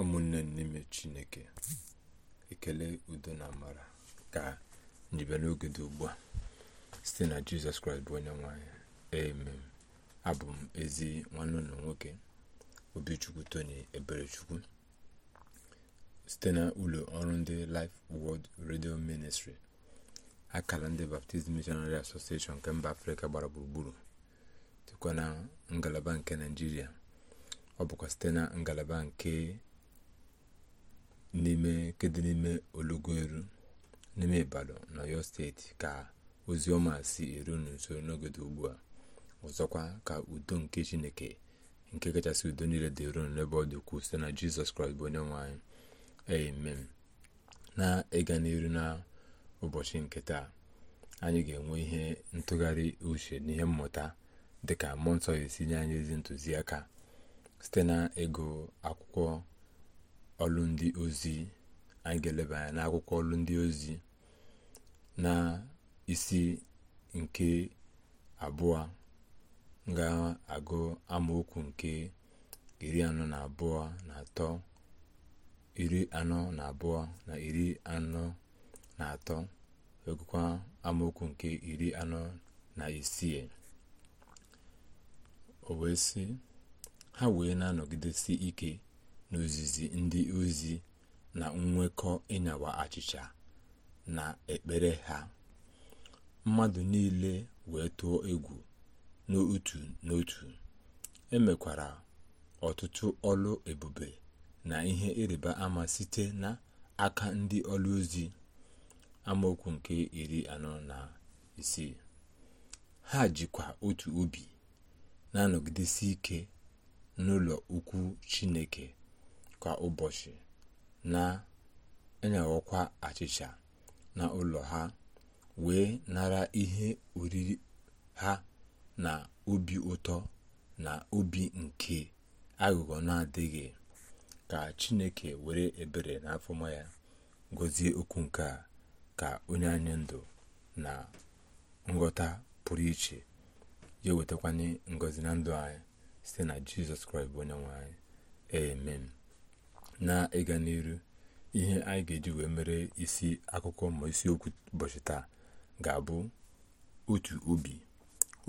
ụmụnne n'ime chineke ekele udo na amara ka njibe n'oge dị ugbu a site na jizọs kraịst bụ onye nwanyị amen abụ m ezi nwanne ụlọ nwoke obichukwu tony eberechukwu site na ụlọ ọrụ ndị Life World redio Ministry akara ndị baptizim Missionary Association nke mba afrịka gbara gburugburu dịkwa na ngalaba nke naijiria ọ bụkwa site na ngalaba nke n'ime kedu n'ime olugoelu n'ime ibadan na steeti ka ozi ọma si eru nso n'ogodo ugbu a ọzọkwa ka udo nke chineke nke kachasị udo niile dị eru n'ebe ọ dị ukwuu site na jizọs kraịst bụ onye nwe anyị amen na ịga n'iru na ụbọchị nke taa anyị ga-enwe ihe ntụgharị uche na ihe mmụta dịka mmụọ nsọ esi nye anyị ezi ntụziaka site na ịgụ akwụkwọ ọlụ ndị ozi anyị ga-eleba anya n'akwụkwọ ọlụ ndị ozi na isi nke abụọ ga-agụ amaokwu nke iri anọ na abụọ na atọ iri anọ na abụọ na iri anọ na atọ egụkwa amaokwu nke iri anọ na isii o wee sị ha wee na-anọgidesi ike n'ozizi ndị ozi na nwekọ ịnyawa achịcha na ekpere ha mmadụ niile wee tụọ egwu n'otu n'otu emekwara ọtụtụ ọlụ ebube na ihe ịrịba ama site na aka ndị ọlụ ozi amaokwu nke iri anọ na isii ha jikwa otu obi na-anọgidesi ike n'ụlọ ukwu chineke kwa ụbọchị e na-enyeghịkwa achịcha na ụlọ ha wee nara ihe oriri ha na obi ụtọ na obi nke aghụghọ na-adịghị ka chineke were ebere na afọma ya gọzie okwu nke a ka onye anyị ndụ na nghọta pụrụ iche ya ewetakwanye ngọzi na ndụ anyị site na jizọs kraịst bụ onye nwe anyị na ịga n'iru ihe anyị ga-eji wee mere isi akụkọ ma isiokwu ụbọchị taa ga-abụ otu obi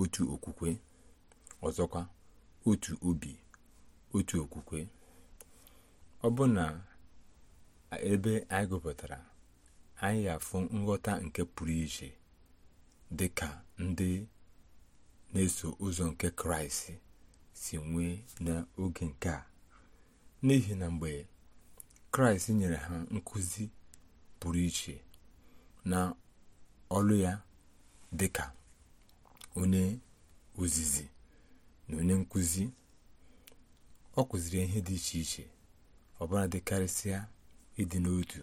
otu okwukwe ọzọkwa otu obi otu okwukwe ọ bụ na ebe anyị gụpụtara anyị afụ nghọta nke pụrụ iche dị ka ndị na-eso ụzọ nke kraịst si nwee n'oge nke a n'ihi na mgbe kraịst nyere ha nkuzi pụrụ iche na ọlụ ya dị ka onye ozizi na onye nkuzi ọ kụziri ihe dị iche iche ọbụla dị karịsịa ịdị n'otu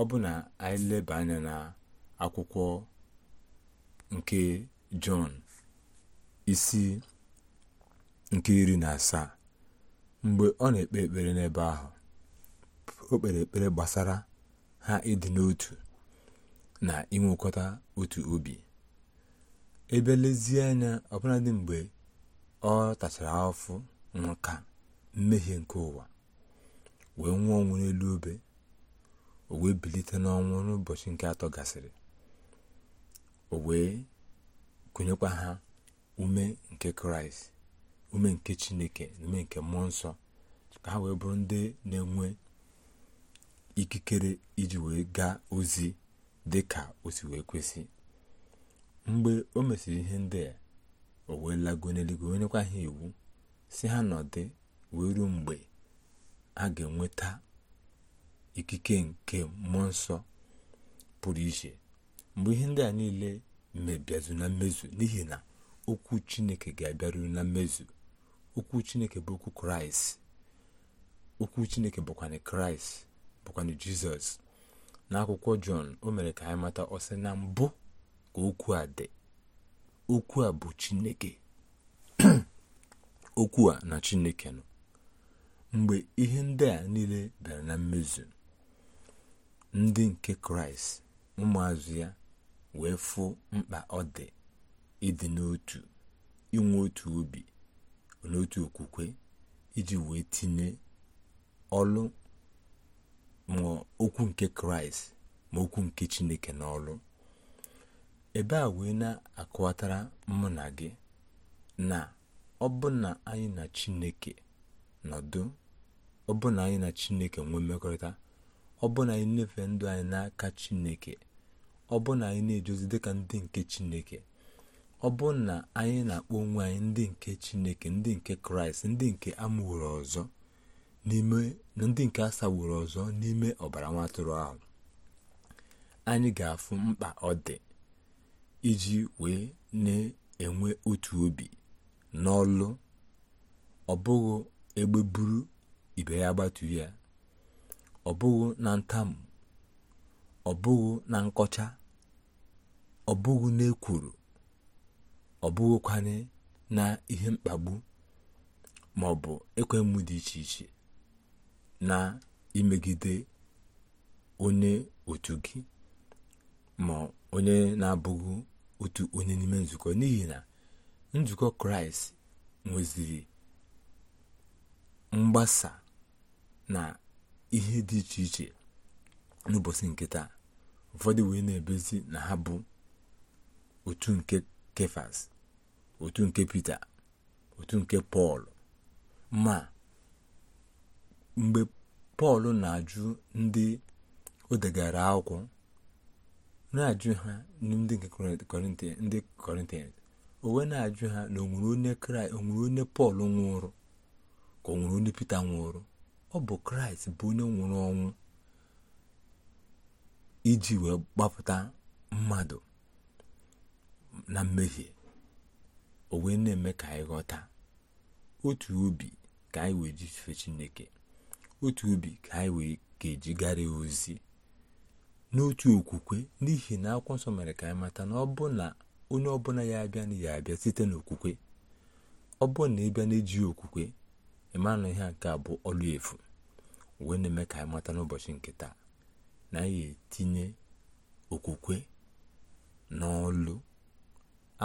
ọ bụ na anyị leba anya na akwụkwọ nke jọn isi nke iri na asaa mgbe ọ na-ekpe ekpere n'ebe ahụ o kpere ekpere gbasara ha ịdị n'otu na inwekọta otu obi ebe lezie anya ọbụladị mgbe ọ tachara afụ nka mmehie nke ụwa wee nwụọ ọnwụ n'elu obe o wee bilite n'ọnwụ n'ụbọchị nke atọ gasịrị o wee kụnyekwa ha ume nke kraịst ume nke chineke na ume nke mmụọ nsọ ka ha wee bụrụ ndị na-enwe ikikere iji wee gaa ozi dị ka o si wee kwesị mgbe o mesịrị ihe ndị a o wee lago n'eluigwe onyekwa ha iwu si ha nọdụ wee ruo mgbe a ga-enweta ikike nke mmụọ nsọ pụrụ iche mgbe ihe ndị a niile mebiazụ na mmezu n'ihi na okwu chineke ga abịaruru na mmezu okwu chineke bụ okwu kraịst bụkwa kraịst bụkwanụ jizọs n'akwụkwọ jọn o mere ka anyị mata ọsị na mbụ ka okwu a dị okwu a bụ chineke okwu a na chineke nọ mgbe ihe ndị a niile bịara na mmezu ndị nke kraịst ụmụazụ ya wee fụ mkpa ọ dị ịdị n'otu inwe otu obi n'otu okwukwe iji wee tinye ọlụ ma okwu nke kraịst ma okwu nke chineke n'ọlụ ebe a wee na-akọwatara mụ na gị na ọbụna anyị na chineke nọdụ ọbụna anyị na chineke nwee mmekọrịta ọbụna anyị na-efe ndụ anyị n'aka chineke ọbụna anyị na-ejozi dịka ndị nke chineke ọbụna anyị na-akpọ onwe anyị ndị nke chineke ndị nke kraịst ndị nke amụrụ ọzọ n'ime ndị nke asagburu ọzọ n'ime ọbara nwa ahụ anyị ga-afụ mkpa ọ dị iji wee na-enwe otu obi n'ọlụ ọ bụghị egbe buru ibe ya gbatu ya ọ bụghị na ntamu ọ bụghị na nkọcha ọ bụghị n'ekwuru ọ bụghịkwana na ihe mkpagbu maọbụ ọ ekwe mmụ dị iche iche na imegide onye otu gị ma onye na-abụghị otu onye n'ime nzukọ n'ihi na nzukọ kraịst nweziri mgbasa na ihe dị iche iche n'ụbọchị nkịta taa ụfọdụ wee na-ebezi na ha bụ otu nke kefas otu nke pita otu nke pọl ma mgbe pọl na-ajụ ndị o degara akwụkwọ na-ajụ ha ndị ndị kọrịntịans o na-ajụ ha na onwere onye kraịst onwere onye pọl nwụrụ ka o onye pita nwụrụ ọ bụ kraịst bụ onye nwụrụ ọnwụ iji wee gbapụta mmadụ na mmehie o na-eme ka anyị ghọta otu obi ka anyị wee jifee chineke otu ubi ka anyị wee ga-ejigara ozi n'otu okwukwe n'ihi na akwụkwọ nsọ mere ka anyị mata na ọ bụ na onye ọbụla ya abịa na ya abịa site n'okwukwe ọ bụ na ịbịa na eji okwukwe ịmanụ ihe nke a bụ ọlụ efu wee na-eme ka anyị mata n'ụbọchị nke taa na anyị etinye okwukwe n'ọlụ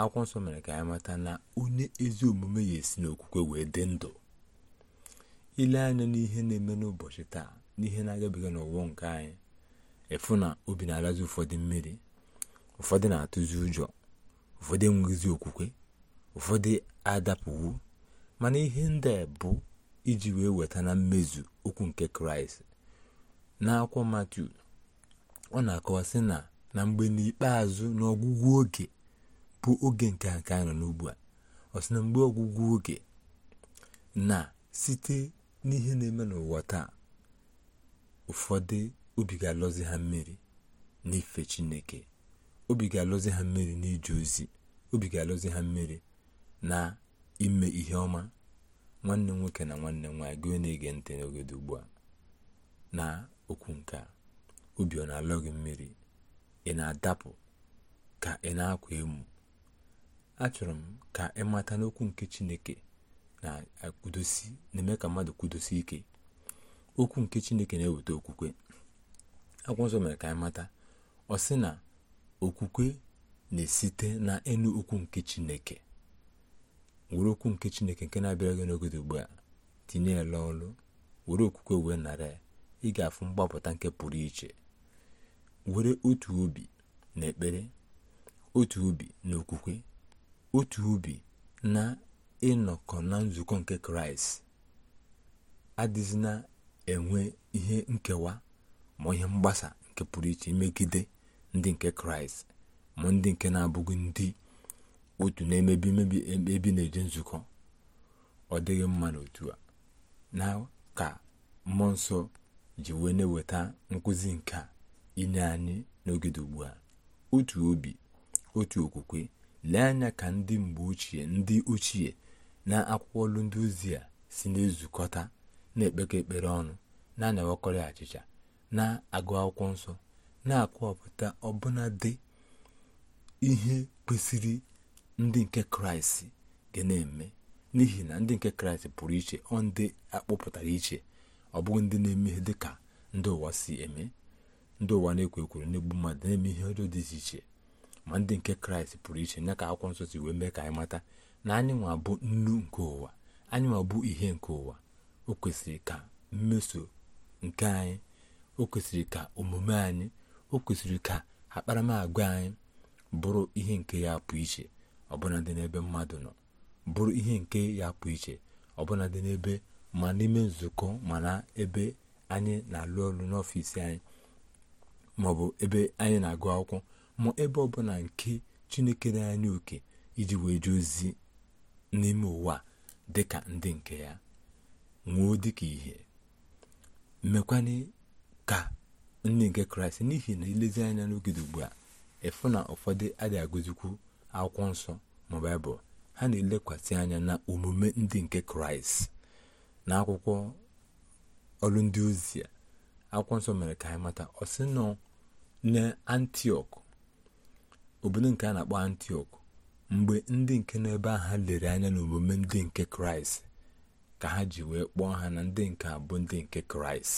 akwụkwọ nsọ mere ka anyị mata na onye ezi omume ya esi n'okwukwe wee dị ndụ ile anya n'ihe na-eme n'ụbọchị taa n'ihe na-agabiga n'ụwa nke anyị ịfụ na obi na-alazi ụfọdụ mmiri ụfọdụ na-atụzi ụjọ ụfọdụ enweghịzi okwukwe ụfọdụ adapụwo mana ihe ndị bụ iji wee weta na mmezu okwu nke kraịst n'akwụkwọ matiu ọ na-akọwasị na na mgbe n'ikpeazụ n'ọgwụgwụ oge bụ oge nke a nke anyị nọ n'ugbu a ọ sị na mgbe ọgwụgwụ oge na site n'ihe na-eme n'ụwa taa ụfọdụ obi ga-alọzi ha mmiri n'ife chineke obi ga-alọzi ha mmiri n'ije ozi obi ga-alọzi ha mmiri na ime ihe ọma nwanne nwoke na nwanne nwaanyị gị na-ege ntị dị ugbu a na okwu nke a obi ọ na-alọ gị mmiri ị na-adapụ ka ị na-akwa emu achọrọ m ka ị mata n'okwu nke chineke na na-eme ka mmadụ kwudosi ike okwu nke chineke na-eweta okwukwe akwụkwọ nsọ mere ka anyị mata ọ sị na okwukwe na-esite na enu okwu nke chineke were okwu nke chineke nke na-abịara gị n'oge ugbu a tinye ya n'ọlụ were okwukwe wee nara ya ị ga-afụ mgbapụta nke pụrụ iche were otu obi na ekpere otu obi na okwukwe otu ubi na ịnọkọ na nzukọ nke kraịst adịzi na-enwe ihe nkewa ma ihe mgbasa nke pụrụ iche megide ndị nke kraịst ma ndị nke na-abụghị ndị otu na-emebi emebi ebi na-eje nzukọ ọ dịghị mma n'otu a na ka mmụọ nsọ ji wee na-eweta nkụzi nke a inye anyị n'oge ugbu a otu obi otu okwukwe lee anya ka ndị mgbe ochie ndị ochie na akwụkwọ olu ndị ozi a si na-ezukọta na-ekpekọ ekpere ọnụ na-anyawakọrị achịcha na-agụ akwụkwọ nsọ na-akọwapụta ọbụna dị ihe kwesịrị ndị nke kraịst ga na-eme n'ihi na ndị nke kraịst pụrụ iche ọ ndị akpọpụtara iche ọ bụghị ndị na-eme ihe dị ka ndị ụwa si eme ndị ụwa na-ekwo ekwuru na-egbu mmadụ na-eme ihe ọjọọ dị iche iche ma ndị nke kraịst pụrụ iche nya ka akwụkwọ nsọ si wee mee ka anyị mata na anyị bụ nnu nke ụwa anyị nwa bụ ihe nke ụwa o kwesịrị ka mmeso nke anyị o kwesịrị ka omume anyị o kwesịrị ka akparamagwa anyị bụrụ ihe nke ya pụ iche ọbụla dị n'ebe mmadụ nọ bụrụ ihe nke ya pụ iche ọbụla dị n'ebe ma n'ime nzukọ ma na ebe anyị na-alụ ọrụ n'ọfịs anyị maọbụ ebe anyị na-agụ akwụkwọ ma ebe ọbụla nke chineke na anyị oke iji wee jee ozi n'ime ụwa dị ka ndị nke ya nwuo dị ka ihe mekwana ka ndị nke kraịst n'ihi na ilezi anya n'ogide ugbu a ịfụ na ụfọdụ adịghị agụzikwu akwụkwọ nsọ ma baịbụl ha na-elekwasị anya na omume ndị nke kraịst na akwụkwọ ọrụ ndị ozi akwụkwọ nsọ mere ka anyị mata ọ nọ na antiọk obodo nke a na-akpọ antiọk mgbe ndị nke nọ ebe ahụ lere anya n'omume ndị nke kraịst ka ha ji wee kpọọ ha na ndị nke abụ ndị nke kraịst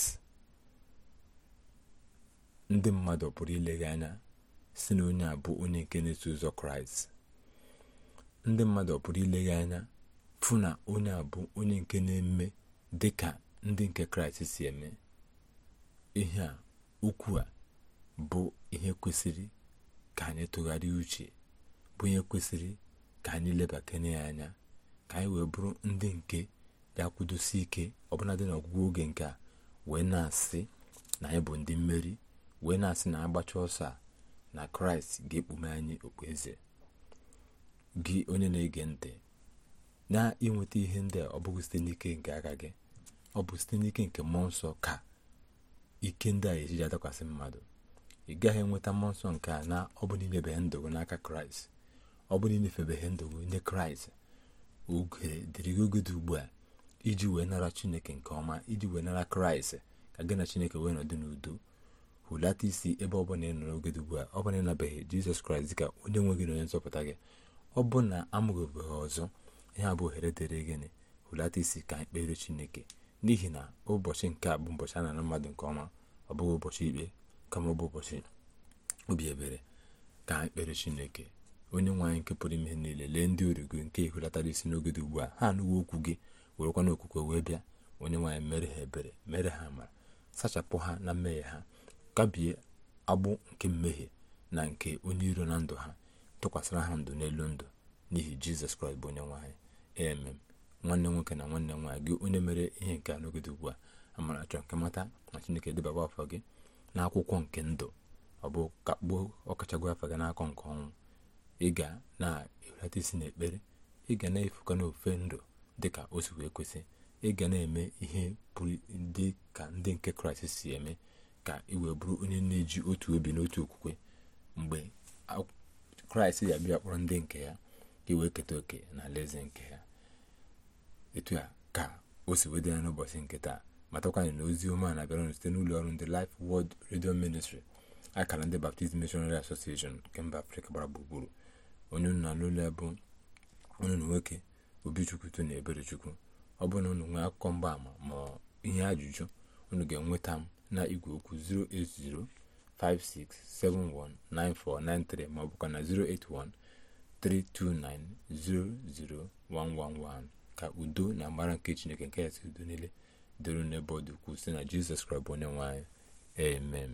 ndị mmadụ pụrụ ilegha anya si na onye abụ onye nke na ụzọ kraịst ndị mmadụ pụrụ ilegha anya fụ na onye abụ onye nke na-eme dị ka ndị nke kraịst si eme ihe ukwu bụ ihe kwesịrị ka anyị tụgharịa uche bụ onye kwesịrị ka anyị lebakanye ya anya ka anyị wee bụrụ ndị nke ga-akwụdosi ike ọbụladị n'ọgwụgwụ oge nke a wee na-asị na anyị bụ ndị mmeri wee na-asị na agbacha ọsọ a na kraịst ga-ekpume anyị okpueze gị onye na-ege ntị na ịnweta ihe ndị a ọ bụghị site n'ike nke aka gị ọ bụ site n'ike nke mmụọ nsọ ka ike ndị a ejiji adakwasị mmadụ ị gaghị enweta mmụọ nsọ nke a na ọ bụ n'ilebanye ndụ gị n'aka kraịst ọ bụrụ inyefebeghị ndụ gị nye kraịst oge dịrị gị oge dị ugbu a iji wee nara chineke nke ọma iji wee nara kraịst ka gị na chineke wee nọdụ n'udo hụlata isi ebe ọ bụla ị nọ n'oge dị ugbu a ọ bụla ị jizọs kraịst dị ka onye nwe gị na onye nzọpụta gị ọ bụ na amụghịbeghị ọzọ ihe a bụ ohere dịrị gịnị hụlata isi ka anyị chineke n'ihi na ụbọchị nke a bụ ụbọchị a nara mmadụ nke ọma ọ bụghị ụbọchị ikpe kama ọ bụ ụbọchị obi ebere ka anyị chineke onye nwaanyị nke pụrụ ime niile lee ndị uru gị nke ihulatara isi n'oge dị ugbu a ha anụwo okwu gị werekwa n'okwukwe wee bịa onye nwaanyị mere ha ebere mere ha amara sachapụ ha na mmehie ha kabie agbụ nke mmehie na nke onye iro na ndụ ha tụkwasịra ha ndụ n'elu ndụ n'ihi jizọs kraịst bụ onye nwaanyị emem nwanne nwoke na nwanne nwaanyị gị onye mere ihe nke a n'oge dị ugbu a amara chọrọ nke mata na chineke debaba afọ gị n'akwụkwọ nke ndụ ọ bụ kakpuo ọkachagụ afọ gị n'akọ nke ọnwụ ị ga na-ewelata isi n'ekpere ị ga na efuka n'ofe ndụ dịka o si wee kwesị ị ga na-eme ihe pụrụ dị ka ndị nke kraịst si eme ka ị wee bụrụ onye na-eji otu obi n'otu okwukwe mgbe kraịst yabịa bịa kpọrọ ndị nke ya ka wee keta oke na alaeze nke ya etu ya ka o si wee dị n'ụbọchị nke taa matakwanyị na ozi ọma na-abịara site n'ụlọ ọrụ ndị Life wod redio ministri akara ndị Baptist Missionary Association nke mba Afrịka gbara gburugburu onye unu alụla ya bụ onye unu nwoke obichukwuto na chukwu ọ bụrụ na unu nwee akụkọ mgbaama ma ihe ajụjụ unu ga-enweta m na igwe okwu 08056719493 ma ọ bụkwa na 08132900111 ka udo na amara nke chineke nke ya si udo niile dịrị n'ebe ọ dị ukwuu site na jizọs kraịst bụ onye amen